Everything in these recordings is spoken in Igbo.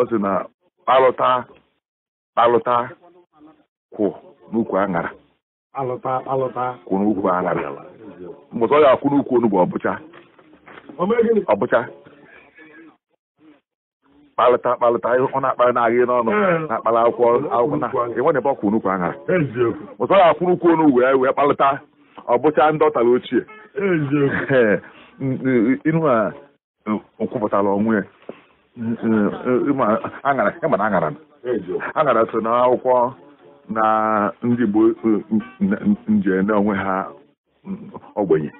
ọ sị na alụta alụta kwụ n'ukwu aṅara kwụ n'ukwu aṅara mbụta ọ ga-akwụ n'ukwu onugbu ọbụcha ọbụcha kpalịta kpalịta ọ na-akpalị n'ahịa agị n'ọnụ eh. na-akpalị akwụkwọ akwụkwọ na enwere ebe ọkwụ n'ukwu aṅara ụtọ ya akwụrụ ukwu onugbu ya wee kpalịta ọbụcha ndị ọtara ochie ihu a kwupụtara onwe ya aṅara aṅara so akwụkwọ na ndị Igbo nje n'onwe ha mm, ogbenye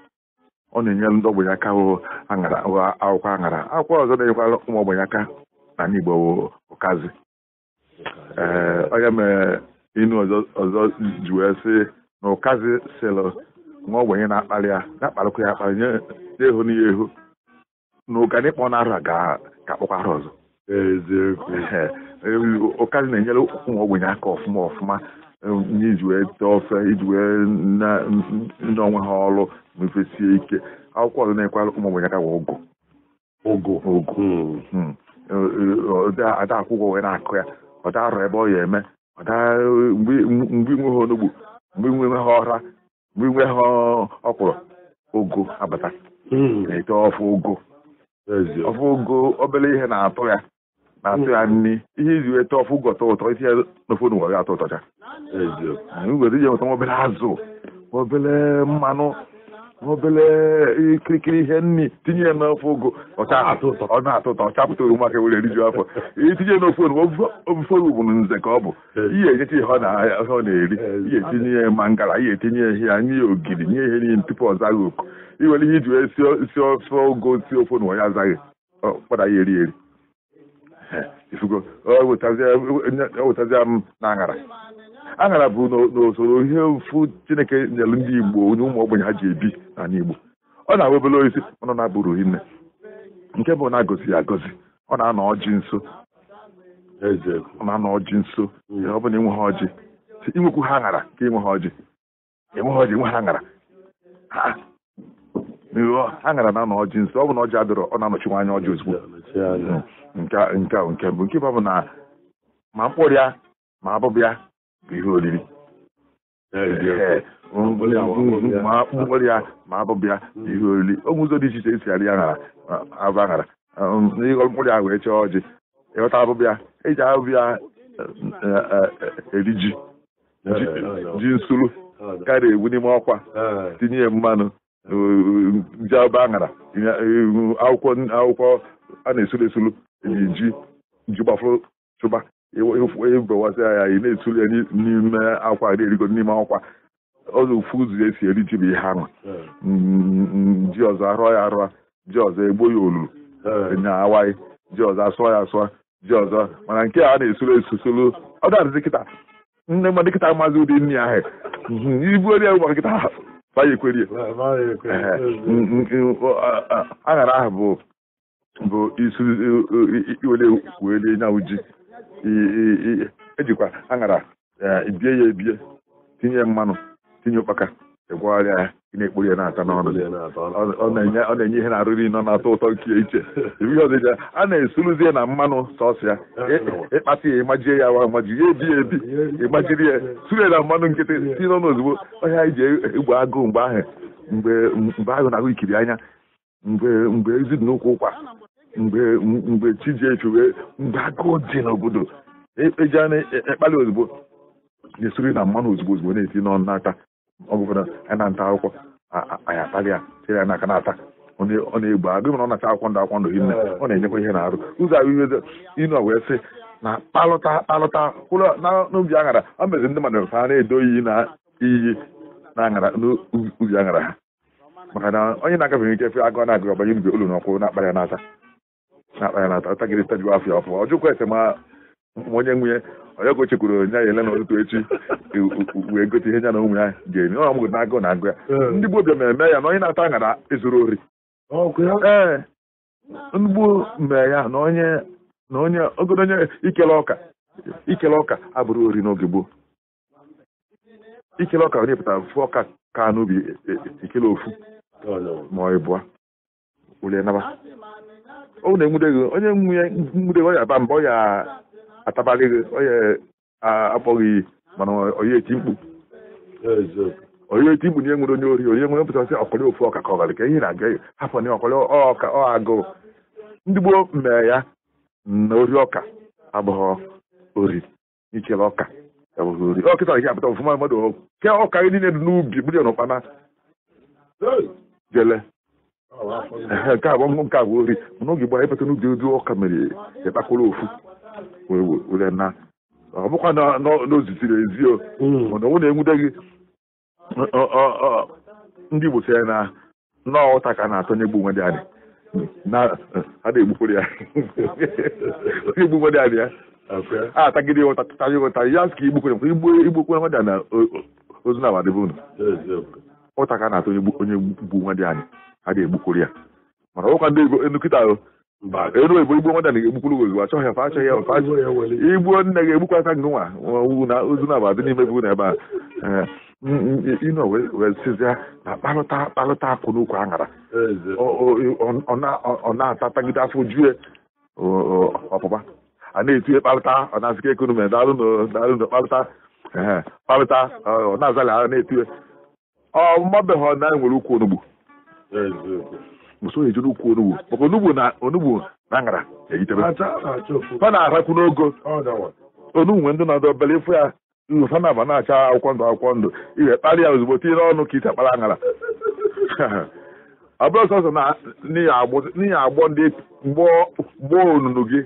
ọ na-enyere ndị ogbenye aka akwụkwọ aṅara akwụkwọ ọzọ na enyekwa ụmụ ogbenye aka na n'Igbo ụkazi ee eh, onye mere inu ọzọ ji wee sị na ụkazi sịlụ nwa ogbenye na akpali ya na-akparịkwa ya akpali nye ehu n'ihe ehu na ụganịkpọ na ara ga ka akpọkwa ha ọzọ ụkazi na-enyere ụmụ ogbenye aka ọfụma ọfụma iji wee tee ofe iji wee ndị onwe ha ọrụ mefesie ike akwụkwọ ọzọ na-ekwara ụmụ ogbenye aka ụgụ ụgụ ụgụ ada hmm. hmm. akwụkwọ wee na-akụ ya ọ darọ ebe ọ ya eme mgbe inwe ha onugbu mgbe inwe ha ọra mgbe inwe ha ọkwụrụ ogo abata hmm. na-ete ọfụ ogo ọfụgo obere ihe na-atụ ya na-atụ ya hmm. nri ihe iji weta ọfụ ọtọ ụtọ isi ya n'ofe ụwa ga-atọ ụtọcha were ije nweta obere azụ obere mmanụ obere e, ihe nri ah. e, tinye ya n'ofe ụgụ ọ na-atọ ụtọ chapụta oroma ka were eriju afọ itinye n'ofe oroma bụ nze ka ọ bụ eh. ihe ejecha ihe ọ na-eri eh. ihe etinye ya mangala ihe etinye ya ihe nye ya ogiri nye ihe niile tupu ọ zaghị oku iwere ihe iji wee si ofe ogo si ofe na ya azaghị kpọda ya eri eri eh. ifugo o m na aṅara aṅara bụ n'usoro ihe ofu chineke nyere ndị igbo onye ụmụ ogbenye ha ji ebi n'ala igbo ọ na-abụ obere oisi ọnụ na-abụrụ hinne nke bụ na agọzi ya ọ na-anọ ọjị nso ọ na-anọ ọjị nso ọ bụla inwe ha ọjị inwekwu ha aṅara ka inwe ha ọjị enwe ha ọjị inwe ha aṅara aṅara na-anọ ọjị nso ọ bụ na ọjị adịrọ ọ na-anọchiwa anya ọjị ozugbo nke nke nke mbụ nke bụ na ma mkpụrụ ma abụbịa ihe oriri ma akpụkpọ ya ma abụbụ ya hmm. ihe oriri ogwe ụzọ dị iche iche esi arị aghara abụ aghara ịghọ mkpụrụ ya wee chọọ ọjị ịghọta abụbụ ya eji abụbụ ya e, e, e, eri ji ji nsuru karịa ewu n'ime ọkwa tinye mmanụ ji abụ aghara akwụkwọ a na-esuru esuru ji ji gbafụrụ chụba ịbewasịa ya ị na-etuli ya n'ime akwa erigo n'ime akwa ọzọ ofu ụzọ esi eri ji bụ ihe ahụ ji ọzọ arụọ ya arụọ ji ọzọ egbo ya olulu nya awaghị ji ọzọ asụọ ya asụọ ji ọzọ mana nke a na-esoro esosolu ọ ga-adịzi kịta nne mmadụ kịta maazị ụdị nne ahụ ibu ya ụgbọ kịta bayekweri aṅara ahụ bụ bụ isi wele wele nyawụ ji ejikwa aṅara e, bie ya ebie tinye mmanụ tinye ụkpaka ịgwagharịa e ya ị na-ekpori ya na-ata n'ọnụ ọ na-enye ihe na-arụrụ nọ na-atọ ụtọ nke iche a na ya na mmanụ sọsụ ya ịkpata ya ịmajie ya wa amaji ya ebi ya ebi ịmajiri ya suru ya na mmanụ nkịtị si n'ọnụ ozugbo ọhịa iji egbe agụụ mgbe ahụ mgbe ahụ na-ahụ ikiri anya mgbe mgbe ezi dị n'ụkwụ ụkwa mgbe mgbe chijiefi wee mgbe agụụ dị n'obodo eji e a ekpali e ozugbo na-esuri na mmanụ ozugbo ozugbo na-eti n'ọnụ n'aka ọgụgụ a na-ata akwụkwọ anyị akpali ya chere ya n'aka na-ata ọ na-egbu agụ na ọ na-ata akwụkwọ ndụ akwụkwọ ndụ hinne ọ na-enyekwa ihe na-arụ ụzọ ahụ ihe ịnọ wee sị na kpalụta kpalụta kwụrụ n'ubi aṅara ọ mezi ndị mmadụ ha na-edo iyi na iyi na aṅara n'ubi aṅara ha maka na onye na-agafeghị ike fe agụ na-agụ ọbanye n'ubi olu n'ọkwụ na-akpara ya n'ata na-akpa na atakịrịta jụ afọ afọ ọ jụkwa ese onye nwunye onye gochekwuru onye ya ele na ụtụtụ echi wee gote ihe nya na ụmụ ya ga-eme ọ mụgụ na-agụ na agụ ya ndị gboo bịa mmemme ya na onye na-ata aṅara ezuru ori ee ndị gboo mee ya na onye na onye ogodo onye ikele ọka ikele ọka abụrụ ori n'oge gboo ikele ọka onye pụtara fụ ọka ka n'ubi ikele ofu ma ọ bụ ulie naba ọ na-enwude gị onye nwunye gị ọ aba mba ọ ya atabalị gị akpọghị mana onye mkpu onye mkpu na onye ori onye nwere mpụtasị ọkọlị ofu ọka ka ọgarị ka ihe na-aga ya hapụ na ọkọlị ọka ọ agụụ ndị gboo mee ya na ori ọka abụghị ori ọka ori ọkịta gị apụta mmadụ ọka gị niile dị n'ubi bụrụ n'ụkpana jele nke a gbanwụ nke a bụ ori mana oge gbara ịpụta n'ubi odu ọka mere ịkpakọrọ ofu were na ọ bụkwa na ezio mana ọ na-enwude gị ndị Igbo sịrị na nnọọ ụta ka na-atọ nye gbu dị adị na a na-egbukwere ya onye egbu nwe dị adị ya a tagide ụta tụtara ụta ya ka igbukwere igbukwere nwe dị na ozu na abadịbụ unu ụta ka na-atụ onye gbu nwa dị anyị a ga-egbukuru ya mana ọkwa ndị nkịta ahụ mba elu ebo igbo nwadana ga-egbukwuru gị achọghị ya achọghị ya fa igbuo nne ga-egbukwa aka ngụ nwa ozu na abadị n'ime bụ na ebe a ino eh, sizia na kparịta kparịta akwụ n'ukwu aṅara ọ na-atatagide afọ jue ọpụpa a na-etinye kparịta ọ na-azịka ekonomi na kparịta ọ na-azali ọ mmabeghị ọ na nwere ukwu onugbu osoghị ejere ukwu onugbu maka onugbu na onugbu na ngara eyitebe ọ na-arakwu n'ogo onugbu nwe ndị na-adọ obere ịfụ ya nfa na-aba na-acha akwụkwọ ndụ akwụkwọ ndụ ihe kparị ya ozugbo tinyere ọnụ ka ite akpara ọ bụrụ sọsọ na n'ihi agbọ ndị gboo onunu gị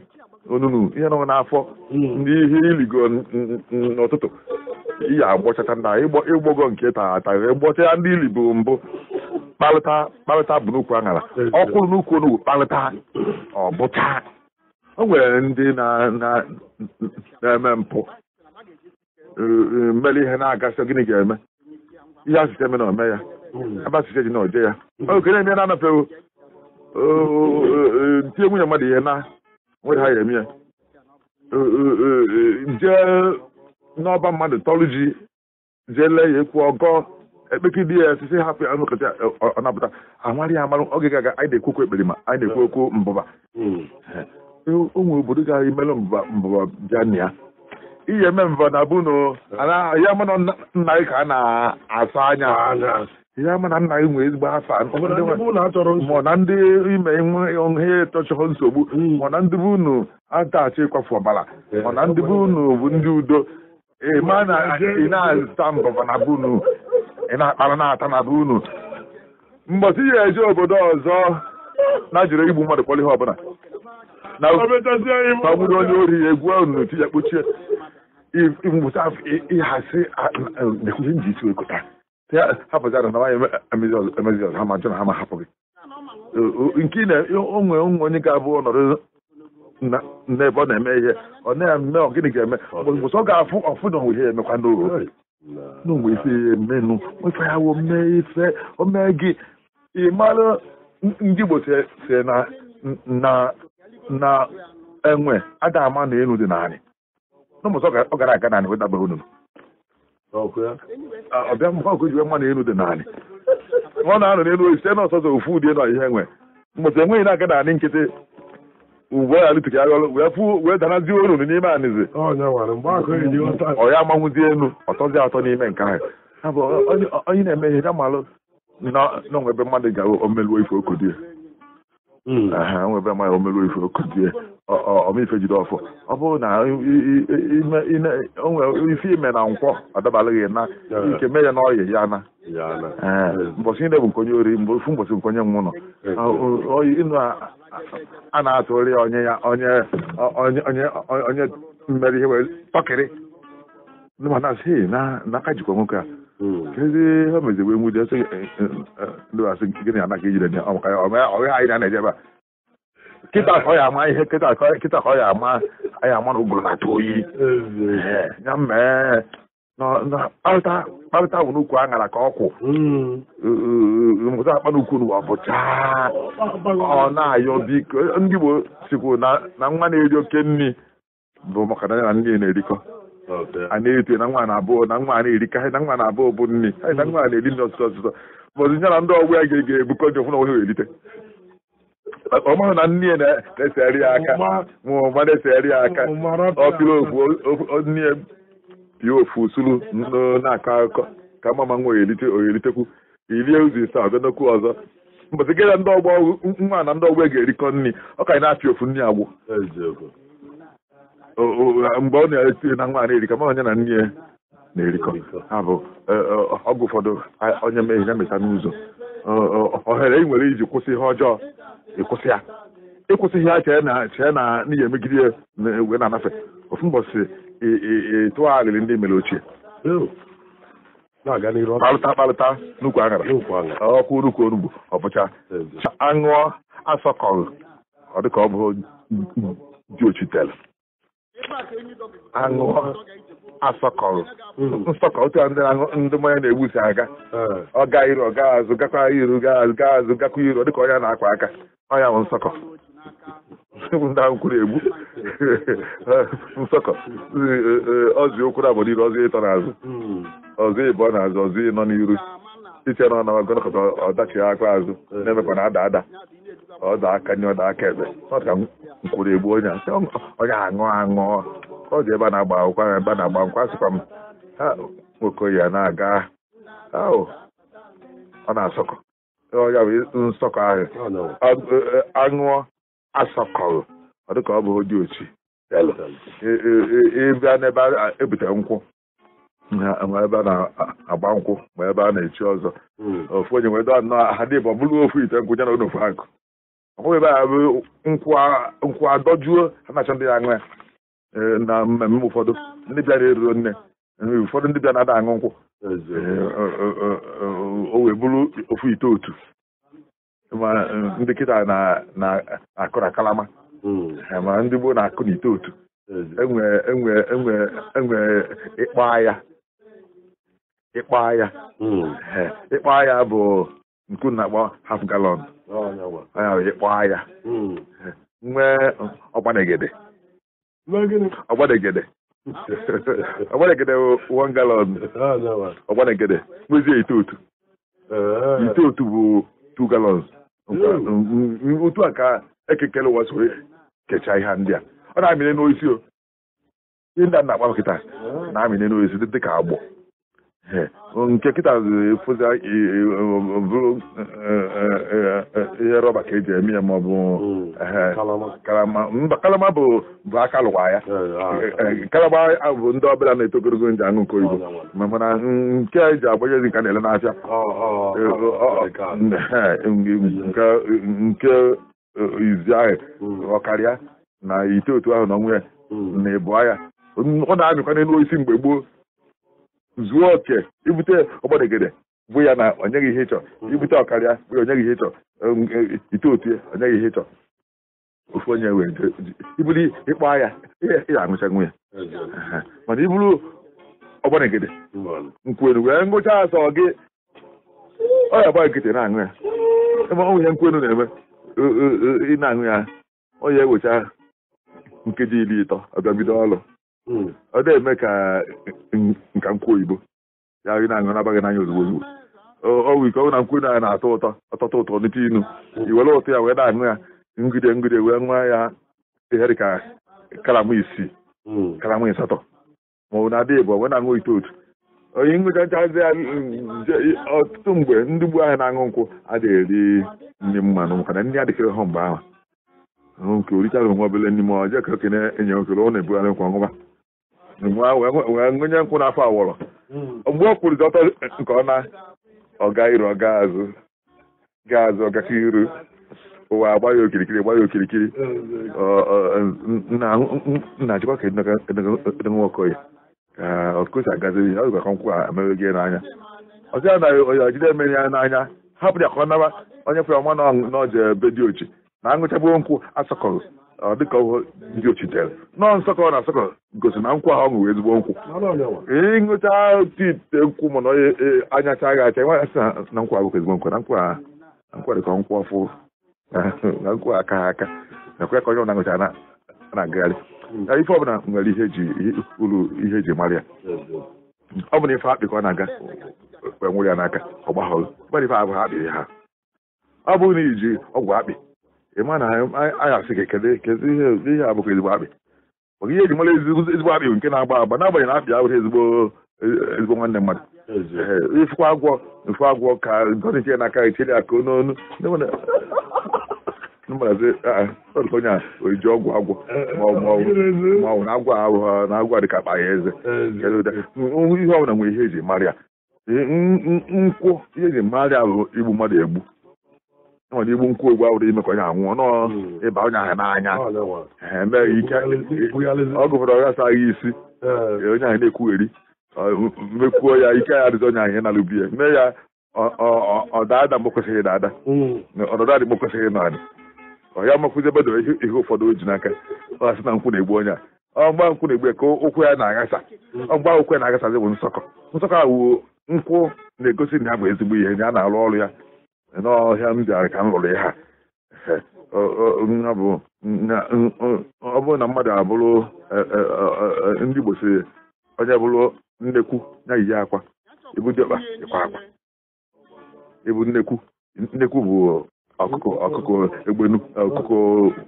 onunu ihe nọ n'afọ hmm. ndị ihe iligo n'ụtụtụ iyi agbọchacha na ịgbọgo nke taa ata ịgbọcha ya ndị ili bụ mbụ kparịta kparịta bụ n'ukwu aṅara ọkwụrụ n'ukwu onugbu kparịta ọ bụcha o nwere ndị na-eme na mpụ mere ihe na-agasị gịnị ga-eme ihe asịsị eme na ome ya abasịsị ji na oje ya oge na-eme na anapụ ntinye nwunye mmadụ ihe na nwere ha ya eme ya n'ọba mmadụ tọrụ ji jee lee ya ekwu ọgọ ekpeki ekpekidi ya sisi hapụ ya nkọcha ọ napụta amarị ya amarụ oge gaga anyị na-ekwu okwu ma anyị na-ekwu okwu mbụba hmm. ụmụ obodo ga imelụ mbụba mbụba bịa na ya iyi eme mbụba na bụ ya mana nna gị ka a na-asa anya ya mana nna gị nwee ezigbo afa mụ na ndị ime ihe tọchọrọ nsogbu mụ hmm. na ndị bụ unu atachi ịkwafu ọbara mụ na ndị bụ unu bụ ndị udo ị eh, ma na ị na-azụta mbọbọ na be ị na-akpara na-ata na be unu ya eje obodo ọzọ na jiri igbu mmadụ kpọrọ ihe ọbụla na ogburu onye ori ya egwu unu ti ya kpochie mụta ịhazi nekwuzi nji isi wekọta ya hapụzara na nwaanyị emezi ọzọ ha ma jụ na ha ma hapụ gị nke onwe onwe onye ga-abụ nọrọ na ebe ọ na-eme ihe ọ na-eme ọ gịnị ga-eme ụsọ ga-afụ ọfụ na onwe ihe emekwa n'oge n'onwe isi ihe menu nwefe ya wo mee ife omee gị ịmara ndị Igbo si na na enwe ada ama na elu dị naanị n'ụmụsọ ọ gara aga naanị wetabere unu ọbịa mkpọkụ jiwe na elu dị naanị ọ na-anọ n'elu site n'ọsọsọ ofu ụdị nọ ihe enwe mbọsị enweghị na-aga naanị nkịtị ugbu a alụtụghị agha wee fụ wee danazie olu n'ime anizi mm. ọ ya elu ọtọzi atọ n'ime nke ahụ onye na-eme ihe ya na n'onwe ebe mmadụ ga omeluo ife okodi ya Mm. aha nwebe amaghị omerụ ife okuzie ọmife jide ọfọ ọ bụrụ na ife ime na nkwọ adabalịghị na ike mee ya na ọyị ya na mbọchị niile bụ nkonye ori mgbe ofu mbọchị nkonye m nọ ịnụ a na-atụrị onye ya onye mmeri ihe were tọkịrị jikwa nwoke a kedu ha meziwe nwude sị ndị asị gịnị ana ka ejire dị ọrịa anyị na-ana ejebe kịta ka ọ ya ama ihe kịta ka ọ ya ama anyị ama na ụgụrụ na-atụ oyi ya mee kparịta bụ n'ukwu aṅara ka ọkwụ mụta akpa n'ukwu n'ụwa bụcha ọ na-ayọ biko ndị Igbo sikwu na nwa na-eri oke nri bụ maka na ya na nne na-erikọ a na-eto na nwa na abụọ na nwa na-eri ka na nwaanyị abụọ bụ nri na nwa na-eri nri ọsụsọ ọsụsọ bọzi ya na ndị ọgwụ ya ga-ebukọ ji ọfụna onwe erite ọ maara na nne na-esegharị aka ma na-esegharị aka ọpịrị okwu nne pịa ofu usuru na-akọ akụkọ ka mama nwa oyelite oyelitekwu irie ụzọ ise ọzọ ndị nwa na ndị ọgbọ ga-erikọ nri ọ ka anyị na-apịa ofu agbụ mgbe ọ na-esi na nwa na-erikọ ma onye na nne ya na-erikọ ha bụ e, e, ọgwụ ụfọdụ onye meghị ya mecha n'ụzọ ohere ị nwere iji kwụsị ihe ọjọọ ịkwụsị ya ịkwụsịghị ya chee na chee na n'ihi emegide ya wee na-anafe ofu mbọchị ịtụọ alịrị ndị mere ochie kpalụta kpalụta n'ukwu aṅara ọkwụ urukwu onugbu ọbụcha aṅụọ asọkọghị ọ dịka ọ bụ dị ochitere aṅụọ asọkọrọ nsọkọrọ otu ndị na-aṅụ ndị mmanya na-egbusi aga ọ gaa iru ọ gaa azụ gakwa iru gaa azụ gaa azụ gakwa iru dịka onye na-akwa aka ọnya bụ nsọkọ ndị ahụ kwuru egbu nsọkọ ọzụ okwu na obodo iru ọzụ ịtọ n'azụ ọzụ ịbọ n'azụ ọzụ ịnọ n'iru iche na ọ na-agọnakọta ọdachi aka azụ na-emekwa na ada ada ọdọ aka nye ọdọ aka ebe ọ ka nkwuru egbu onye onye aṅụ aṅụ ọ dị ebe a na-agba akwụkwọ ahụ ebe a na-agba nkwa asịkwa m ha okoye na-aga ọ na-asọkọ ya bụ nsọkọ ahụ aṅụọ asọkọrọ ọ dịka ọ bụ dị ochi ịbịa n'ebe ebute nkwụ ma ebe a na-agba nkwụ ma ebe a na-echi ọzọ ofu onye nwee dọọ nnọọ ha dị bụ bụrụ ofu ite nkwụ ya na onofu akụ hụ ebe a bụ nkwụ adọjuo na ndị ya aṅụ ya na mmemme ụfọdụ ndị bịara eruo nne ụfọdụ ndị bịa na-ada aṅụ nkwụ o wee bụrụ ofu ite otu ma ndị kịta na-akụ na kalama ma ndị gboo na-akụ na ite otu enwe ịkpọ ya ịkpọ ya ịkpọ agha bụ nku na-agba half galọn oh, onye kpọọ ya hmm. nwee ọgbanegede ọgbanegede ọgbanegede one galọn oh, ọgbanegede kpezie itotu oh, itotu bụ two galọn hmm. otu a ka ekekele ụwa soro kechaa ihe ndị a ọ na-amịnye n'oisi o ndị a na-akpa nkịta na-amịnye n'oisi dị ka agbọ nke kịta bụrụ ihe rọba ka eji eme ya ma ọ bụ kalama bụ aka lụwa ya kalama bụ ndị ọbụla na-eto ogologo nji aṅụ nke oyibo mana nke eji agbanye ezi nka na-ele nahịa nke izi ahụ ọkarịa na ite otu ahụ na ọnwụ ya na ịbụ ya ọ na-amịkwa n'elu mgbe gboo zuo oke ibute ọgbadegede bụ ya na onyeghị ihe ịchọ mm-hmm. ibute ọkarịa bụ ya onyeghị ihe ịchọ e, ite otu ya onyeghị ihe ịchọ ofu onye wee ibuli ịkpa ya ya aṅụcha nwa ya mana iburu ọgbadegede nkwenu wee ngụcha asọ gị ọ ya gba nkịtị na-aṅụ ya ọnwụ ihe nkwenu na-eme e, e, ị na-aṅụ ya ọ ya ewecha nkeji iri ịtọ ọbịa bido ọrụ Hmm. ọ dị eme ka eh, nka nkwụ oyibo ya gị na-aṅụ nabaghị n'anya ozugbo ozugbo ọgwụ ike ọgwụ na nkwụ na na-atọ ụtọ ọtọtọ ụtọ n'ite inu iwere ụtọ ya wee na-aṅụ ya ngide ngide wee nwa ya ihe dị ka karama isii hmm. karama ịsatọ ma na-adị bụ wee na-aṅụ itotu onye ngụcha nchazi ya mm, ọtụtụ mgbe ndị gbu ahụ na-aṅụ nkwụ adịghị eri nri mmanụ makana ndị adịkịrị ha mgbe ahụ nke orichara onwe obele n'ime ọjọọ ka okenye enye okele ọ na-ebugharị nkwa ọṅụba wee gụnye nkwụ n'afọ awọrọ mgbe o kwurịta ọtọ nke ọ ọga iru ọga azụ gaa azụ ọgaka iru ụwa agba ya okirikiri agba ya okirikiri nna achịkwa ka edokoya ọkụsi agaziri ya ọzụkwa nkwụ a emeghị n'anya ọzọ ya na onye ọjide emeghị ya n'anya hapụ ya ka ọ naba onye fere ọma na ọje be dị ochi na aṅụchagbuo nkwụ asọkọrọ Ah, ọ dịka ndị ochite nọọ nsọkọ na nsọkọ gosi na nkwụ ahụ ọ ṅụrụ ezigbo nkwụ ịṅụcha otu ite nkwụ na anyacha agha acha nwa asị na nkwụ abụghị ezigbo nkwụ na nkwụ a nkwụ dịka nkwụ ọfụ na nkwụ aka aka na kwe ka onye ọbụla ṅụcha na-agagharị ife ọbụla nwere ihe ji uru ihe eji mara ya ọ bụ na ife akpị ka ọ na-aga e nwere ya n'aka ọ gbaghọrọ ọ bụrụ na iji ọgwụ akpị ị ma na anyị asị gị kedu ihe abụghị ezigbo akpị maka ihe eji mara ezigbo akpị nke na-agba agba n'agbanyeghị na abịa abụghị ezigbo ezigbo nwanne mmadụ ifụkwa agwọ ifụ agwọ ka gọdị chie n'aka ichiri aka n'onu onye a oji ọgwụ agwọ maọbụ na agwọ ahụhụ na agwọ dịka akpa ya eze ihe ọbụla nwere ihe eji mara ya nkwụ ihe eji mara ya bụ igbu mmadụ egbu na igbu nkwụ egwu awụrụ ime ka onye anwụọ nọ ịba onye ahụ n'anya ọ gụpụrụ ọghasaghị isi onye ahụ na-ekwugheri mekwuo ya ike ya dịzi onye ahụ ihe na-alụbi ya mee ya ọdada mgbe kwesịghị na ada ọdada dị kwesịghị na adị ọ ya makwụzi ebe ihe ụfọdụ o ji n'aka ọ sị na nkwụ na-egbu onye a ọgba nkwụ na-egbu ka ụkwụ ya na-aghasa ọgba ụkwụ ya na-aghasazi bụ nsọkọ nsọkọ ahụ nkwụ na-egosi na ya bụ ezigbo ihe na ya na-arụ ọrụ ya n'ọhịa m ka m hụrụ ya ha ọ bụrụ na mmadụ abụrụ e, e, e, ndị Igbo siri onye bụrụ nnekwu ya iyi akwa ibu dịkpa ịkwa akwa ibu nnekwu nnekwu bụ ọkụkụ ọkụkọ egbe ọkụkụ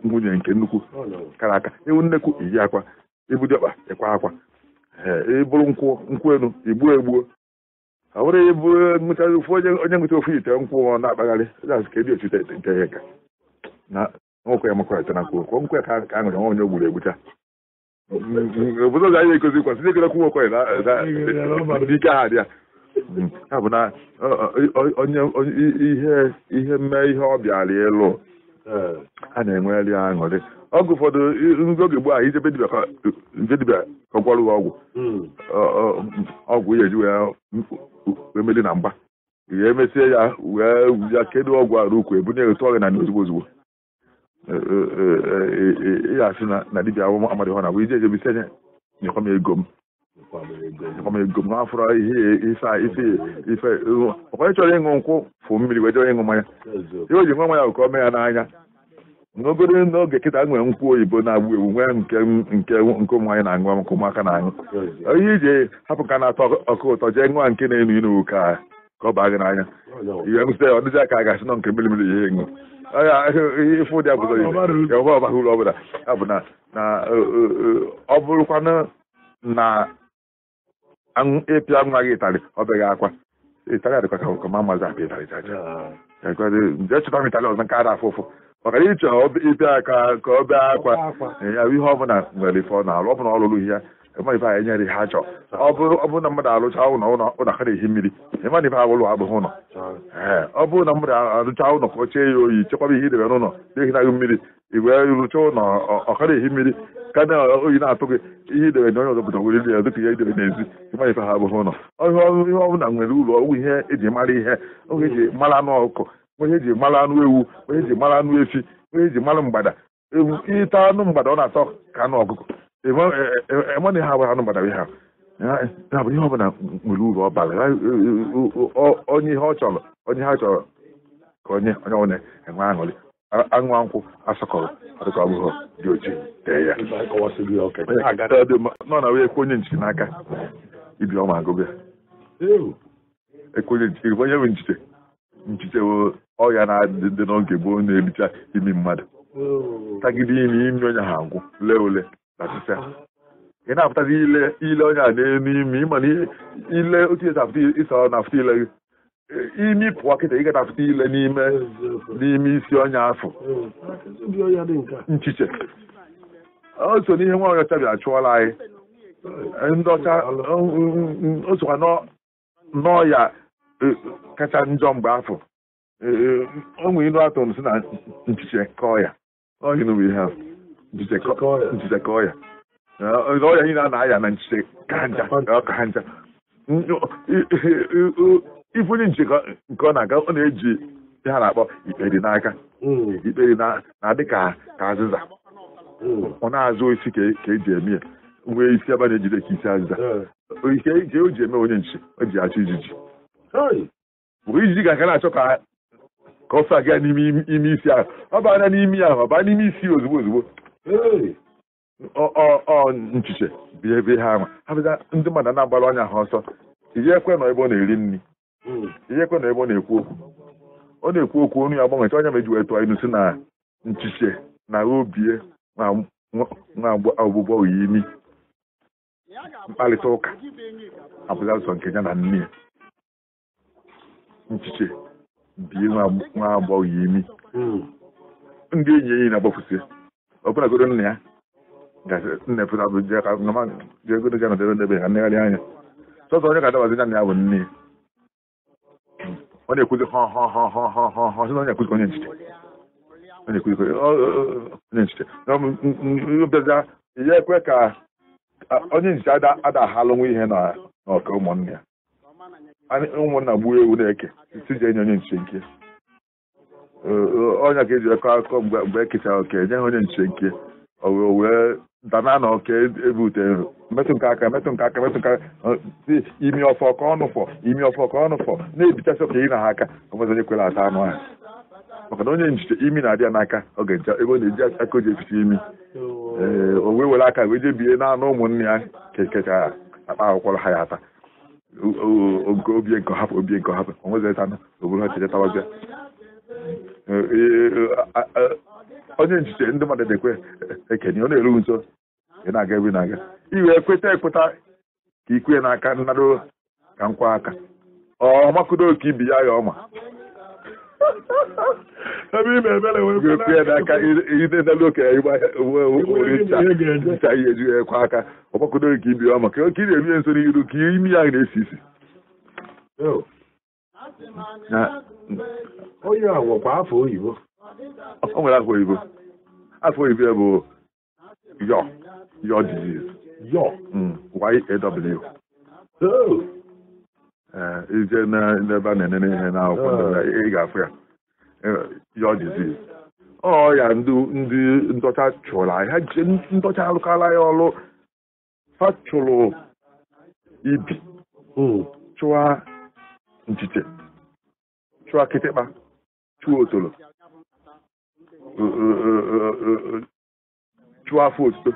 nwunye nke nnukwu kara aka ibu nnekwu iyi akwa ibu dịkpa ịkwa akwa ịbụrụ nkwụ nkwụ enu igbuo egbuo ọbụrụ ịbụ mụchazi ụfụ onye ngụcha ofu ite nkwụ na-akpagharị jaz ka ebi ochite ite nke ihe na nwekwe ya na nkwụ nkwe ka ka aṅụrụ nwa onye gburu egbucha obodo ọzọ anyị ekozi kwasị ndị kedekwu nwekwe dị ike ha dị ya ya bụ na onye ihe ihe mee ihe ọ bịara ịlụ a na-enweli aṅụrị ọgwụ ụfọdụ oge gboo ahụ ijebe dibịa kọgwarụ ọgwụ hmm. ọgwụ ya eji wee emeli na mgba ihe emesie ya wee ya kedu ọgwụ arụ ukwu ebunye otu ọrịa na ndị ozugbo ozugbo e, e, e, ya asị na dibia amadị na abụ ije ejebisi enye nyekwa m ego m nyekwa ego m ihe ife ife nkwụ fụ mmiri wee ịṅụ mmanya ji mmanya ka ya n'anya n'obere n'oge kịta nwere nkwụ oyibo na-agba ewu nwee nke nke nke ụmụ anyị na-aṅụ ọkụ ụmụaka na-aṅụ ihe iji hapụ ka na-atọ ọkụ ụtọ jee nwa nke na-enu inu ka ka ọ baa gị n'anya ihe msite ọ dịghị aka a ga-asị nọ nke mmiri ihe ṅụ ife ụdị abụzọ ihe ọba ọbaghị uru ọbụla ya bụ na e, e, e, ọ bụrụkwanụ na ịpịa nwa gị ịtarị ọ beghị akwa ịtarị adịkwa ka ma mazi apịa ịtarị nje chụta m ịtarị ọzọ nke a na-afụ ụfụ maka na ịchọ ibe aka ka ọ bee akwa ya ihe ọbụla nwere ife ọ na ọbụla ọ lụrụ ihe ife enyere nyere chọ ọ bụrụ ọ bụrụ na mmadụ alụcha ụlọ ụlọ ka na-ehi mmiri ife ụlọ ọ bụrụ na mmadụ alụcha ụlọ ka ọ chee ya oyi chekwaba ihe idebe n'ụlọ na-ehinaghị mmiri igwe rụcha ụlọ ọka ehi mmiri ka na oyi na-atụ gị ihe idebe na onye ọzọ pụta were ya dịka ihe idebe n'ezi ịmana ife ha ihe ọbụla nwere ụlọ ọgwụ ihe eji mara ihe oge eji mara anụ onye ji mara anụ ewu onye ji mara anụ efi onye ji mara mgbada ewu ịta anụ mgbada ọ na-atọ ka anụ ọgụgụ Eme e, e, ha abụghị anụ mgbada ha ya bụ ihe ọbụla nwere uru ọ e, onye ihe ọ chọrọ onye ha chọrọ ka onye onye ọbụla enwe aṅụrị aṅụ asọkọrọ ọbụghọ dị na wee ekwenye nwe ọya na adị dị n'oge bụ onye na-ericha imi mmadụ tagide imi imi onye ha ngwụ lee ule na ị na-apụtazi ile ile onye a na-enye n'elu imi ịma na ile otu esi apụta ịsa na apụta ile gị imi pụọ kịta ị ga na-apụta ile n'ime n'ime isi onye afọ nchiche o so n'ihe nwa onye ọcha bịa chụọla anyị ndị ọcha o sokwa n'ọya kacha njọ mgbe afọ ụmụ eh, ilu atụrụ si na nchiche kọọ ya ọhịa n'ụwa ihe ahụ nchiche kọọ ya ọrịa niile a na-aya na nchiche ka ncha ifunye nche nke ọ na-aga ọ na-eji ihe a na-akpọ ikperi n'aka hmm. ikperi na-adị ka azịza hmm. ọ na-azụ isi ka eji e eme ya nwee isi ebe na-ejide ka isi azịza hmm. ike o ji eme onye nche o ji achọ ijiji bụ ijiji ga-aga na-achọ ka ka ọsọ aga n'ime ime isi ahụ ọ bụ anya n'imi ahụ ọ bụ n'ime isi ozugbo ozugbo ọ nchiche bịa ebe ha ama ha bịa ndị mmadụ na-agbara anya ha ọsọ ijekwe na ebe ọ na-eri nri hmm. ijekwe na ebe ọ na-ekwu okwu ọ na-ekwu okwu onu ya agbanwecha onye meji wee tụọ inu si na nchiche na obie nwa ọgbụgbọ oyi imi mkparịta ụka abụghị asọ nke ya na nne ya nchiche bie nwa agbọghọ imi hmm. ndị enyi enyi na-agbafusi ọbụlagoro nna ya na-epụtaụjegoro ga nọdebe ndebe ha negharị anya sọsọ onye ga-adabazi ya bụ nne ọ na-ekwuzi ha ha ha ha ha ha ha na onye ekwuzi onye njide onye ekwuzi onye ya ekwe ka onye njide ada ahalụ nwa ihe n'ọka ụmụnne ya ụmụnna gbuo ewu na-eke iji enye onye nche nke ọnya ka eji akọ akụkọ mgbe ekechara e oke nye ha onye nche nke wee dana na oke ebe metụ nke aka metụ nke aka metụ nke aka imi ọfọ ka ọnụ imi ọfọ ka ọnụ na-ebichasị oke na ha aka ọmezi onye kwere ata anụ ha maka na onye nchiche imi na-adị ya n'aka oge ncha ebe ọ na-eji aka o ji eficha imi ee o wee were aka wee jebie na anụ ụmụnne ya kechara akpa akwụkwọ ha ya ata obie nke hapụ obie nke hapụ o nweghị etanụ oburu ha chere tabazia onye nchiche ndị mmadụ na ekenye ọ na-eru nso ị na-aga ebe na-aga iwe kweta ekweta ka ikwe n'aka nnarụ ka nkwa aka ọmakudo ka ibi ya ya ọma ebe ime ebere wee kwe n'aka idedelu okenye ncha ihe eju ekwe aka ọgbakodoro ka ibi ọma ka ị na-ebie nso n'iru ka imi ya na-esi isi onye a ọ nwere afọ oyibo afọ oyibo bụ mm. yo yo disease yo y ije n'ebe a na-enene ihe n'akwụkwọ ị ga-afụ ya ya diziz ọ ya ndị ndọcha chụrụ ha ji ndọcha alụkala ya ọrụ ha chụrụ ibi chụwa nchiche chụwa kịtịkpa chụwa otolo chụwa afọ otito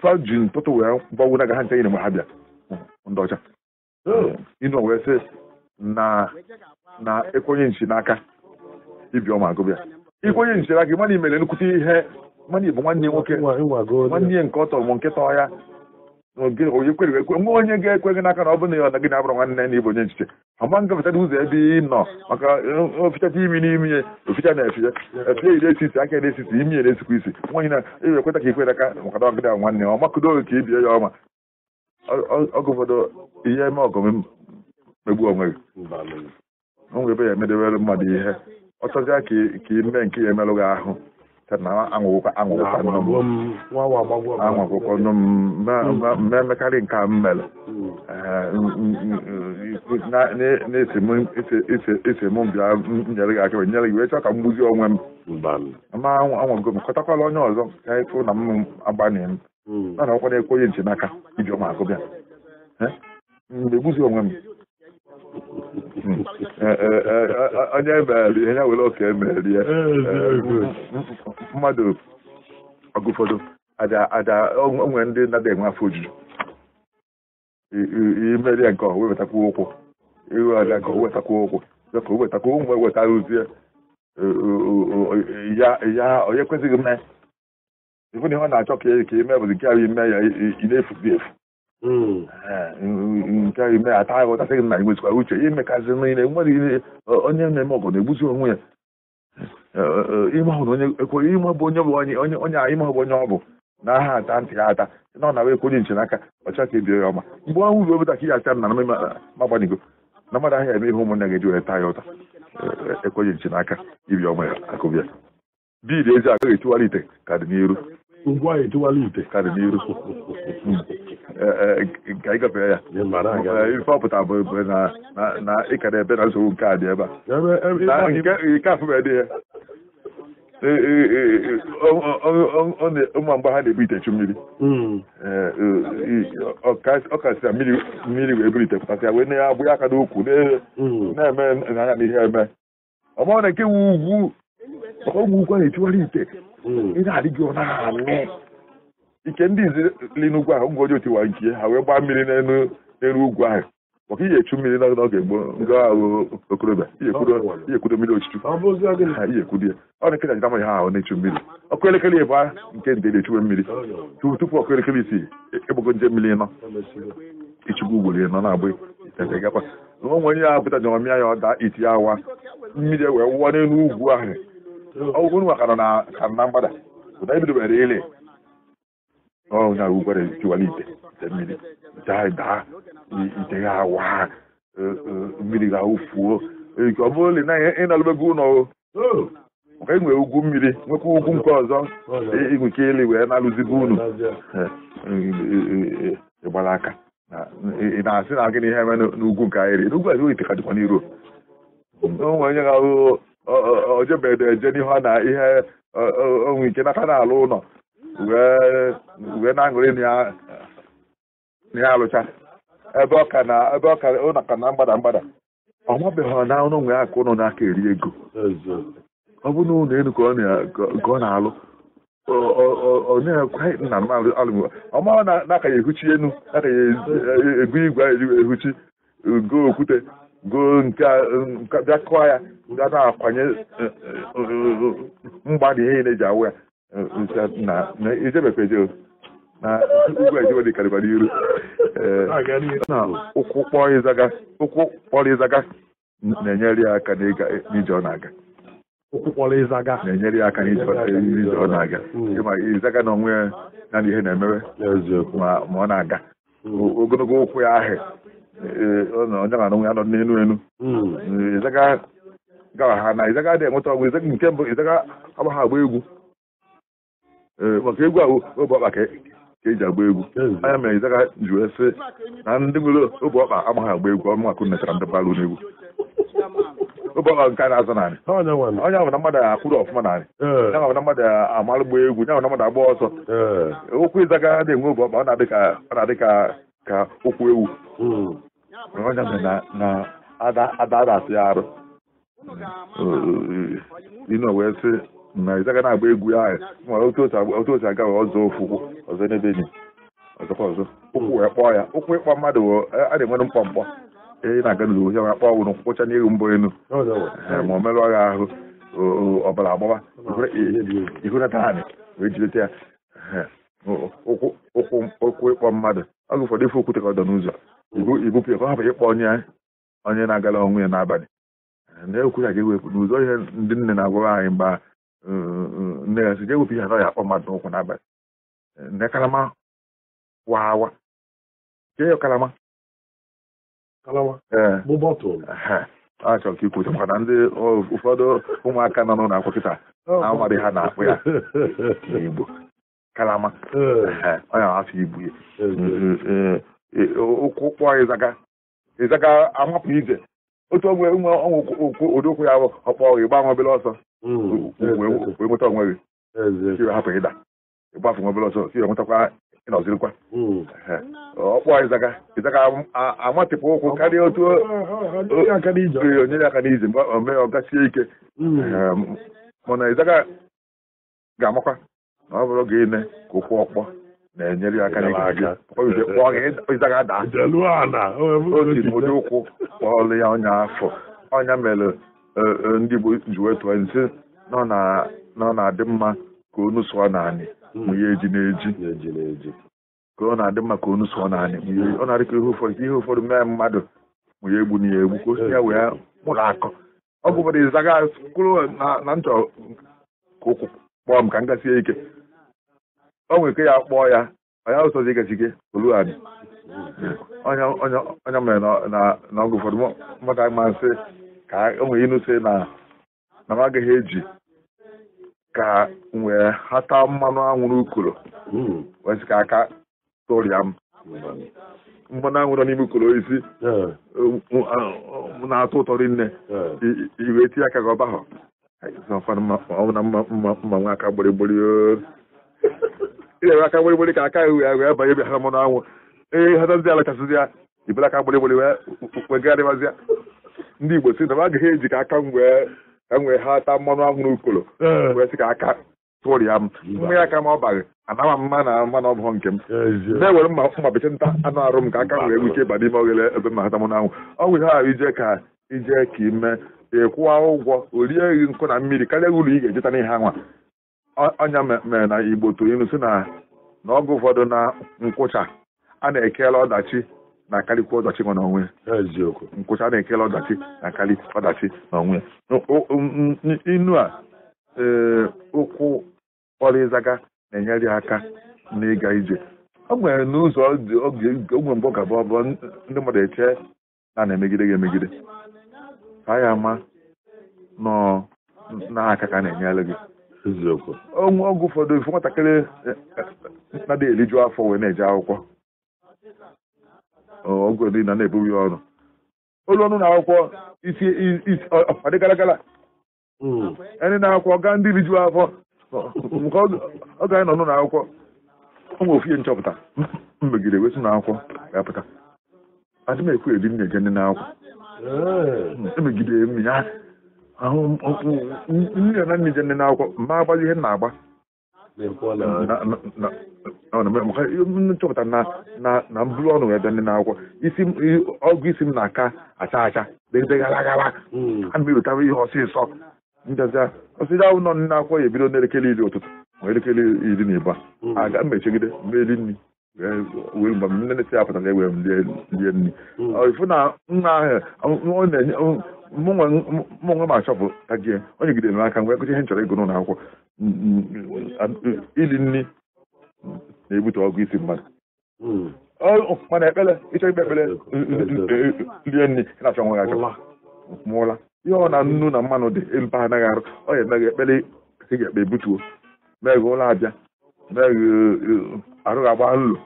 faji ntụtụ wee gbanwu na gaha nche nyere mgbe ha bịa ndị ọcha ịnọ wee sị na na ekwenye nchi n'aka ibi ọma agụbịa ikwenye nchi n'aka mana imere nnukwute ihe mana ibu nwanne nwoke nwanne nke ọ tọrọ m nke tọọ ya onye kwere ekwe ga-ekwe gị n'aka na ọ bụrụ na ọ gị na-abụrụ nwanne na ibu onye nchiche ama ngafechata ụzọ ebe ị nọ maka ofichata imi n'imi ya oficha na efie efie ire esisi aka ere esisi imi ere esikwa isi nwaanyị na-ewe ekweta ka ikwere aka maka na ọgịda nwanne ọ makụdo ka ibie ya ọma oge ihe eme ọgụ megbu onwe gị m ebe ya emedewere mmadụ ihe ọ ka ka ime nke ya emerụ gị ahụ hmm. nke mere na-esi m bịa nyere gị aka nyere gị wee ka m gbuzie onwe m onye ọzọ ka na m agbanye m Hmm. mana ọkwa na-ekwenye nche n'aka iji ọma akụ bịa egbuzi hmm, onwe m hmm. e, e, e, onye mere ihe ya were oke emeri ya mmadụ onwe ndị nada enwe afọ ojuju imeri ya nke ọha wewetakwuo ụkwụ nke ife na ihe ọ na-achọ ka ka ime bụ nke ahụ ime ya ị na-efuzi efu nke ahụ ime ya ata ahụ ọtasị gị na igbezikwara uche imekazị niile nwere onye na-eme ọgụ na-egbuzi onwe ya ime bụ onye bụ onye onye ime bụ onye ọ bụ na aha ata ntị ya ata na ọ na-abụ ekwe onye nche n'aka ọcha ka ebie ya ọma mgbe ọnwụ ruo taka ka ihe acha na na mmadụ ahịa eme ihe ụmụnne gị ji were taa ya ụta ekwenye nche n'aka ibi ọma ya akụbịa bid ezi agaghị etiwala ite ka dị n'iru ugwu anyị etiwala ite ka n'iru eh, eh, nke anyị gafere ya eh, ife ọpụta bụ na ịkara ebe na nsogbu nke a dị ebe a nke afụbe dị ya ụmụ mgbe ha na-ebu itechu mmiri hmm. e, ọkasịra mmiri wee buru ite pụtasịa wee na ya abụ ya aka n'ukwu hmm. na-eme na ya na ihe eme ọ na nke wu ugwu ọgwụ ụgwọ na-etiwara ite ị na-adị gị ọ na-amị ike ndị izi li n'ugwu ahụ ngwa ọjọọ tiwara nke ha wee gbaa mmiri n'elu ugwu ahụ maka ihe echu mmiri n'oge gboo nga ahụ okorobịa ihe kwudo mmiri ochichu ihe kwudo ya ọ na nkịta amaghị ha ahụ na-echu mmiri ọkụ elekere ịbụ nke ndị na-echuwe mmiri tupu ọkụ elekere isi ịgbago nje mmiri nọ ichukwu ugboro ya nọ na-abụ gakwa na onwe onye ya pụta jọmamịa ya ọ daa iti awa mmiri wee wụọ n'elu ugwu ahụ ogun wa kanona kanna mbada dai bi dubare ile na ubare ti da ya wa e, e, mmiri ga ko e, le na e na nwe ugwu mmiri nwekwa ugwu nke ọzọ ke wee na aka ị na na ite ka dịkwa o ga ojebede eje n'ihu na ihe onwe ike n'aka alụ ụlọ wee na-aṅụrị na ya alụcha ebe ọka na ebe ọka ụlọ ka na mgbada mgbada ọ mabeghị na ọnụ nwe ụnụ ụlọ n'aka eri ego ọ bụ na ụlọ ka ọ na-alụ ọmara na aka ya ehuchi enu aka ya ego igwe ehuchi go okwute gụọ nke um, bịa kụọ ya ga na-akwanye eh, eh, mgbada ihe na-eji awụ ya ijebekweje eh, na ugwu ejebe dịkarịkwara iru ụkwụ kpọrọ ịzaga na-enyere ya aka n'ije ọ na-aga na-enyere ya aka n'ije ọ na-aga hmm. ịma ịzaga na onwe ya na ihe na-emewe ma ọ na-aga ogologo ụkwụ ya ahụ ọnọdụ nwa ya anọ n'elu elu gara ha na ịzaga adịghị enweta ọgwụ izaga nke mbụ ịzaga agba ha agba egwu maka egwu ahụ obe ọkpa ka eji agba egwu anya mere ịzaga ji wee sị na ndị nwere obe ọkpa agbaghị agba egwu ọnụ akụ netara ndị balụ n'egwu obe ọkpa nke a na-azụ narị onye ahụ na mmadụ akwụrụ ọfụma narị ya ahụ na mmadụ amalụ gba egwu ya ahụ na mmadụ agba ọsọ okwu ịzaga dị enwe obe ọ na-adị ka ka ụkwụ ewu ọnya na na Ada Ada asị arụ ino wee sị na ịzaga na-agba egwu ahụ ma otu osi aga ọzọ ofu ọzọ n'ebe ni ọzọkwa ọzọ ụkwụ wee kpọọ ya ụkwụ ịkpọ mmadụ a na-enwere mkpọ mkpọ ị na-aga n'ụlọ ohi ọnya kpọọ wụrụ nkwụcha n'ihu mbụ enu ma o merụ ọgha ahụ ọbara agbawa ihu na taanị wee jileta ya ụkwụ ịkpọ mmadụ ọgụ ụfọdụ ife okwute ka ọ dọ n'ụzọ ibupụ hapụ ịkpọ onye onye na-agala ọnwụ ya n'abalị eh, eh. eh, ah, na oh, oh. ya ka ewepụ n'ụzọ ihe ndị nne na-agwara anyị mgba nne ya si ewepụ ihe anọ ya akpọ mmadụ n'ụkwụ n'abalị nne kalama wawa ke ya kalama a chọrọ ka ikwucha maka na ndị ụfọdụ ụmụaka nọ n'ụlọ akwụkwọ kịta na-amadị ha na-akpụ ya n'Igbo kalama onye afọ ibu ya ụkwụ kpụọ ịzaga ịzaga amapụ ije otu onwe nwe ọnwụ odokwu ya ọkpọ ịgba nwa obele ọsọ wee nweta onwe gị hapụ ịda ịgbafu nwa obele ọsọ si enwetakwa ịnọzirikwa ọkpọ ịzaga ịzaga amatịpụ ụkwụ karịa otu onyere aka n'ije mgbe omee ọ gasie ike mana ịzaga ga-amakwa na ọ bụrụ gị ine ka ụkwụ ọkpọ na-enyere ya aka otibodo ụkwụ kpọọlụ ya ọnya afọ ọnya mere e, e, ndị Igbo ji wetụọ nsi nọ na-adị mma ka onu sụọ naanị hmm. mụnye eji na-eji ka ọ na-adị mma ka onu sụọ naanị ọ na-adị ka ihe ụfọdụ ka ihe ụfọdụ mee mmadụ mụnye egbu na ya egbu ka o ya wee mụrụ akọ ọ bụbara ịzaga kwụrụ na nchọ ka ụkwụ kpọọ m ka m gasie ike o nwere ike ya kpọọ ya onye ụsọzi igazige olughadị onye mere na ọgụ ụfọdụ mmadụ amasị ka o nwere ịnụsị na na m agaghị eji ka wee hata mmanụ anwụrụ ukoro wee sị aka tụrịa m mmanụ anwụrụ n'ime ukoro isi na-atọ ụtọ rinne iwe tinye aka gị ọba ahụ ọ bụ na mma mma nwa aka gborigbori ga-ewe aka gbịrịgbịrị ka aka ihu ya wee banye bịa ha mmanụ anwụ ee hata ala kasị ya ibere aka gbịrịgbịrị wee gagharịwazịa ndị igbo si na m agaghị eji ka aka m wee ka m wee ha taa mmanụ anwụ n'ukolo eh. wee sị ka aka tụrịa m mmanya aka m ọ baghị anaghị mma na mmanụ ọ nke m na-ewere mma mma nta anụ arụ m ka aka m wee gwuchie ịba n'ime oghere ebe m hata mmanụ anwụ ọ bụ ihe ije ka ije ka ime ịkwụwa ụgwọ o rie eghị nkụ na mmiri karịa uru ị ga-ejeta n'ihe anwa Ọnya mere na igbo tụrụ ilu si na n'oge ụfọdụ na nkwụcha a na-ekele ọdachi na-akarịkwa ọdachi nọ n'onwe eziokwu nkwụcha na-ekele ọdachi na-akarị ọdachi n'onwe inu a ee ụkwụ kpọrọ na-enyere aka n'ịga ije o nwere n'ụzọ oge ogwe mbụ gaba ọbụ ndị mmadụ eche na na-emegide gị emegide ka ya ama nọ n'aka ka na-enyere gị eziokwu ọnwụ ọgwụ ụfọdụ ifu nwatakịrị eh, na-adịghị eriju afọ wee na-eje akwụkwọ ọgwụ dị na na-ebu ya ọrụ olu ọnụ na akwụkwọ isi ọdị gara gara hmm. ndị na-akwụkwọ gaa ndị riju afọ nke ọ ga nọ na akwụkwọ ọnwe ofie nchọpụta mmegide wesi na akwụkwọ ga-apụta adị m ekwu eri m na-eje ndị na akwụkwọ emegide mmiri ahụ nne na nne na n'akwụkwọ ma agbazi ihe na-agba nchọpụta na na na. mbụrụ ọnụ wee bịa ndị n'akwụkwọ isi ọgwụ isi m na-aka acha acha agara. a na ewetara ihe ọsịsọ njazia ọsịsọ ahụ nọ ndị n'akwụkwọ ya ebido n'elekere iri ụtụtụ ma elekere iri na ịba aga mechegide meri nri wee mgbe nne na-esi apụtara ewee lie nri ifu na nna ahụ na-enye mụnwa m achọpụ bụ ajie onye gidere n'aka mgbe akụchi ihe nchọrọ ịgụ n'ụlọ akwụkwọ ili nri na-ebute ọgụ isi mmadụ mana ekpere ịchọ ikpe ekpere lie nri na-achọ nwa achọ mụọla ihe ọ na nnu na mmanụ dị mpa anaghị arụ ọ ya emeghe ekpere ị ga-ekpe ebutuo meghe ụlọ abịa meghe arụghị agba nlụ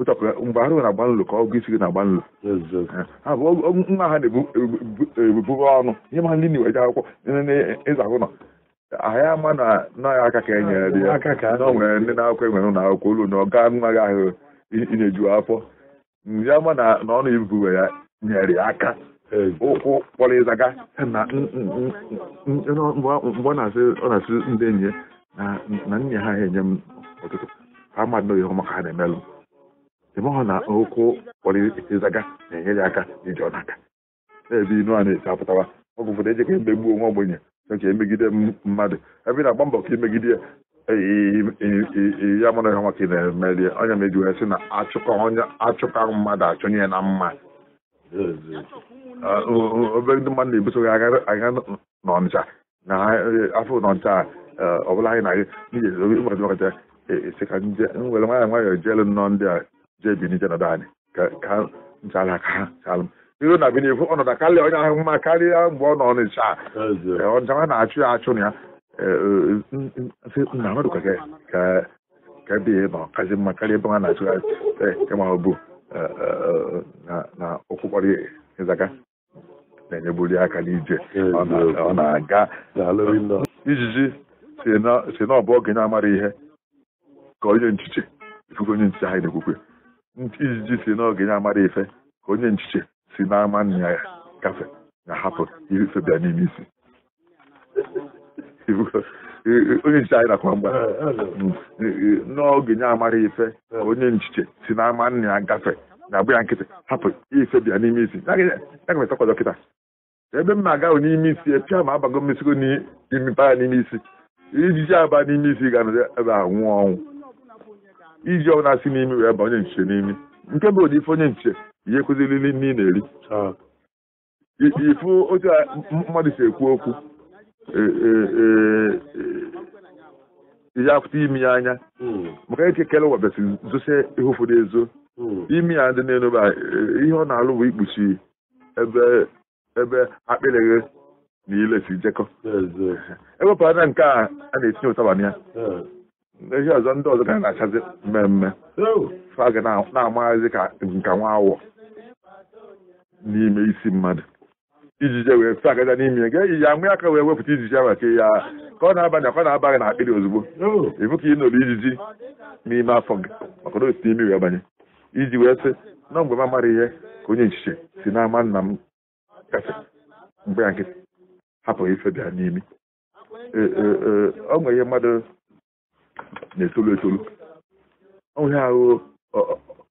mgbe arụ na-agba nlu ka ọgụ isi gị na-agba nlu nwa ha na-ebuburu ọnụ ihe ma ndị na-eweje akwụkwọ ịza ahụ nọ ahịa ama na nọghị aka ka e nyere ya nwere ndị na-akwụkwọ enwere ụlọ akwụkwọ olu na ọga nwa gị ahụ inyeju afọ ndị ama na ọnụ ibuwe ya nyere ya aka ụkwụ kpọrọ ịzaga na mgbe ọ na-asị ndị enyi ya na nna ha enye m ọtụtụ ha mmadụ ihe ọma ka ha na-emelụ ebe ọ na okwu ịzaga na-enyere aka iji ọnaka na-ebe inu a na eche apụtawa ọgwụ ụfọdụ ejeka emegbuo nwa ogbenye oke emegide mmadụ ebe ị na-agba mbọ ka imegide e, e, e, ya mụrụ ya maka ị na-emeri onye meji wee sị na achụka mmadụ achụnye ya na mma obere ndị mmadụ na-ebuso gị agha n'ọnịcha na afọ n'ọnịcha ọ bụla anyị na-aga n'ihi nwere nwaanyị nwayọọ jeelu nnọọ ndị a jebini jenadani ka ka nchara ka iru na binikwu ọnọdụ karịa onye ahụ mma karịa mgbe ọ nọ n'ịcha ọnjama na-achụ ya eh, achụ ya nna eh, eh, mmadụ ka ka ebe e nọ e, e kazi mma karịa ebe ha na-achụ ya ịma obu na okwukpọrọ ịzaga na-enyebuli aka n'ije ọ na-aga ijiji si na ọ bụ ogenye amara ihe ka onye nchiche ifufe onye nchiche ha na-ekwukwe nti ijiji si n'oge ya amara ife ka onye nchiche si n'ama nna ya gafe na hapụ ife bịa n'ime isi onye nchiche anyị nakwa mgba n'oge ya amara ife ka onye nchiche si n'ama nna gafe na-abụ ya nkịtị hapụ ife bịa n'ime isi agafetakwa dọkịta. ebe m na-aga n'ime isi epịa ma abago mmesigo n'imipa n'ime isi ijiji aba n'ime isi ga-anọ ebe a nwụọ ọnwụ iji ọbụla si n'imi wee ba onye nche n'imi nke bụ ụdị ife onye nche ihe kụzirili nne ị na-eri ah. ifu otu mmadụ si ekwu okwu e, e, e, ihe akwụta imi ya anya hmm. maka eke kele webesi zosie ihe ụfọdụ ezo hmm. imi ya dị na-enu ihe ọ na-alụ bụ ikpuchi ebe ebe akpịrịghị na ile si jekọ ewepụrụ anya nke a a na-etinye ụtaba na ya hmm. eji ọzọ ndị ọzọ gara na-achazi mmemme fa ga na-amaghazi ka nka nwa awọ n'ime isi mmadụ ijije wee fe agaja n'ime ga eyi ya nwee aka wee wepụta ijiji ahụ ka ya ka ọ na-aba na ka ọ na-abaghị na akpịrị ozugbo ịbụ ka ị nọrọ ijiji n'ime afọ gị maka na otu imi wee banye iji wee sị na mgbe m amara ihe ka onye nchiche si n'ama nna m kasị mgbe ya nkịtị hapụghị ife bịa n'imi ọ nwere ihe mmadụ na-etolu etolu onye ahụ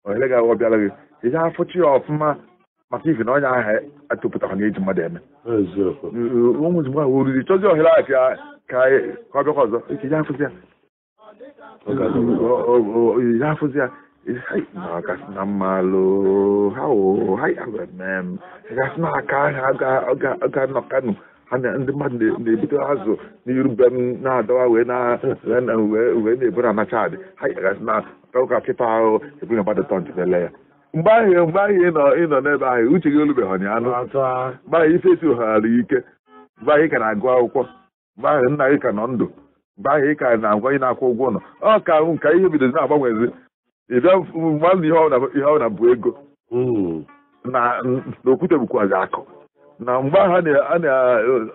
ohere gị ahụ bịara gị ije afọchi ya ọfụma maka ife na onye ahụ atụpụtara na eji mmadụ eme ụmụ ozugbo ahụ oriri chọzi ohere ahụ ka ka ọ bịakwa ihe ije afụzi ya ije afụzi ya kasị na mmalụ ha wụ ha agwa eme m gasị na aka ahụ ga nọ kanu ha na ndị mmadụ na-ebute azụ n'iru be m na-adawa wee na-eburu anacha adị ha gasị na ụka kịta ahụ ebuna badịtọ ele ya mgbe ahụ mgbe ahụ ịnọ n'ebe ahụ uche gị olubeghị ọnya anụ mgbe ahụ ife ohara ike mgbe ahụ ị ka na-agụ akwụkwọ mgbe ahụ nna gị ka nọ ndụ mgbe ahụ ị ka na-agwa ị na-akwụ ụgwọ ụlọ ọ ka ahụ ka ihe bidozi na-agbanwezi ịbịa mmadụ ihe ọ na bụ ego na okwute bụkwazi akụ na mgbe na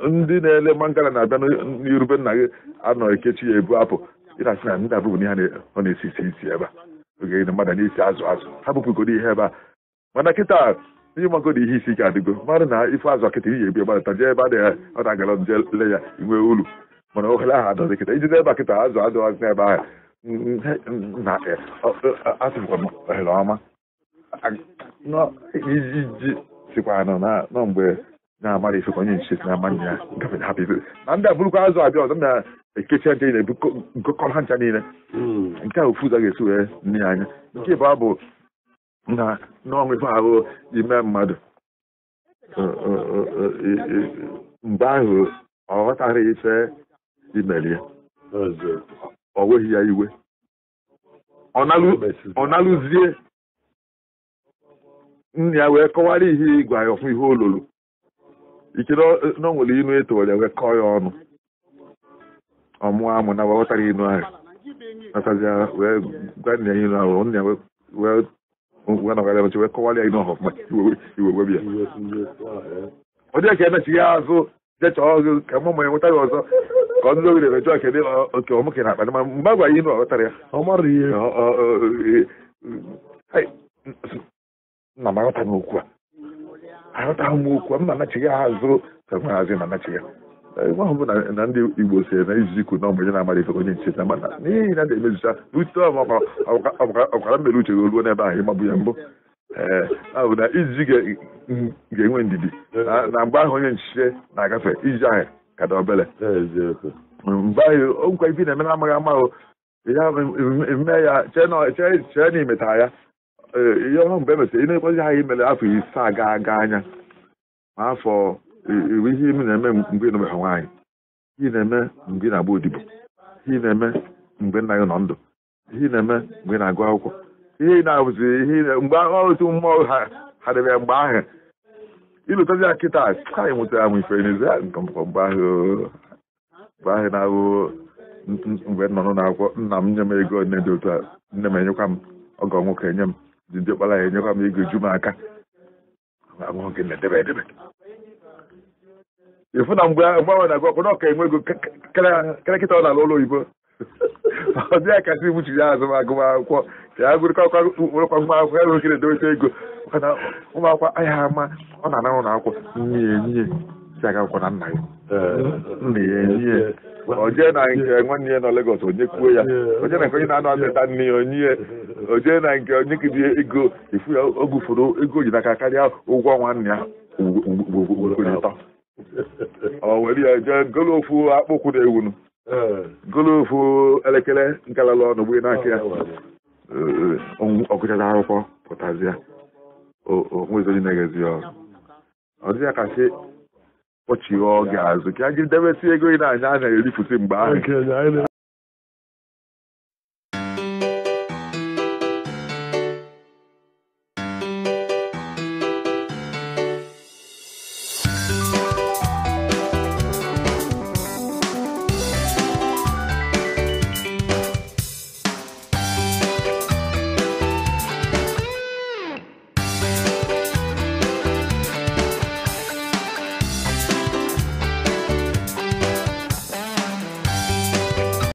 ndị na-ele mangala na-abịa n'irube nna gị anọ ekechi ya ebu apụ ịrasị na ndị abụbụ n'ihe ọ na-esi isi isi ebe a oge mmadụ na-esi azụ azụ ha bụpụgodo ihe ebe a mana kịta ịmagodo ihe isi ike adịgo mmadụ na ife azụ kịta ihe ebi gbadata jee ebe adịghị ọ na-agara je le ya inwe ulu mana ohere ahụ adọzi kịta ijide ebe kịta azụ adịghị n'ebe ahụ na e, e, asịkwa ohere ọma iji sikwa anọ na mgbe na-agbara ife ka onye nche si na-ama nna ya hapụ hapụzi na ndị a azụ abịa ọzọ na-ekecha nche niile gokọrọ ha ncha niile mm. nke a ofu ụzọ ga-esi eh, wee nne anya nke ịbụa abụ na n'ọnwụ ife ahụ ime mmadụ mgbe ahụ ọ ghọtara ife imere ya o nweghị ya iwe ọ nalụzie nna ya wee kọwara ihe ịgwa ya ọfụ ihe olulu ichere na inu nwere inu etowere ya ọnụ ọmụọ amụ na gbaghọtara inu ahụ nasaziara wee gwa nna ya inu ahụ nna wee wee nọgara wee kọwara ya inu ma iwe ya ọ dị ka ya azụ jechaa ọgụ ka mụ ma ya nwetara ọzọ ka ndị ogere emechi ọka dị oke ọmụke na akpa mgbe agwa ya inu ọghọtara ya ọ mara ihe nna m okwu aghọtaghị m okwu m na-anachighị ha azụ ka m hazi na-anachighị ebe ahụ bụ na ndị igbo si na izizi ikwu na ọmụnye na-amara ife onye nche na mana n'ihi na na-emezicha n'ute ọkwara mmere uche ruo n'ebe ahụ ịgbabụ ya mbụ ee ahụ na izizi ga-enwe ndidi na mgbe ahụ onye nchiche na-agafe iji ahụ ka dị obere mgbe ahụ nkwa ibi na-eme na amaghị amahụ ya mee ya chee na imetara ya Eh, ihe ọhụrụ mgbe emesịrị ị na-ekwezi ha imele afọ ise aga aga anya ma afọ iri ihe ime na-eme mgbe ịnụbeghị nwaanyị ihe na-eme mgbe ị na-agba odibo ihe na-eme mgbe nna gị nọ ndụ ihe na-eme mgbe ị na-agụ akwụkwọ ihe na-abụzi ihe mgbe otu mmụọ ha hadịbịa ya mgbe ahụ ịlụtazi ya kịta anyị nwetara m ifere n'ezi ya mgbe ahụ na-ahụ mgbe nọ n'ụlọ akwụkwọ nna m nye m ego nne dị otu a nne m enyekwa m ọgọ nwoke enye m ji ndị ọkpara ya enyekwa m ego ju m aka abụghị na-edebe edebe ịfụ na mgbe mgbe ahụ na-agụ ọkpọrọ ọka enwe ego kerekịta ọ na-alụ ụlọ oyibo ọ dị ya kasị gbuchiri ya azụ agụmakwụkwọ ka ya gụrịkwa akwụkwọ akwụkwọ ya rụgide edobecha ego maka na ụmụ akwụkwọ ahịa ama ọ na-anara na akwụkwọ nye ya nna ya onye na nke nwanne ya nọ Lagos onye kwuo ya na nke onye na-anọ nne ya onye na nke onye kiri ego ifu ya ogufuru ego ji n'aka karịa ụgwọ nwanne ya ya jee golo akpụkwụ na ewunu golo ofu elekere ya akwụkwọ na kpọchie ọ ga-azụ ka a ga-edebesi ego ị na-anya a na-erifụsi mgbe ahụ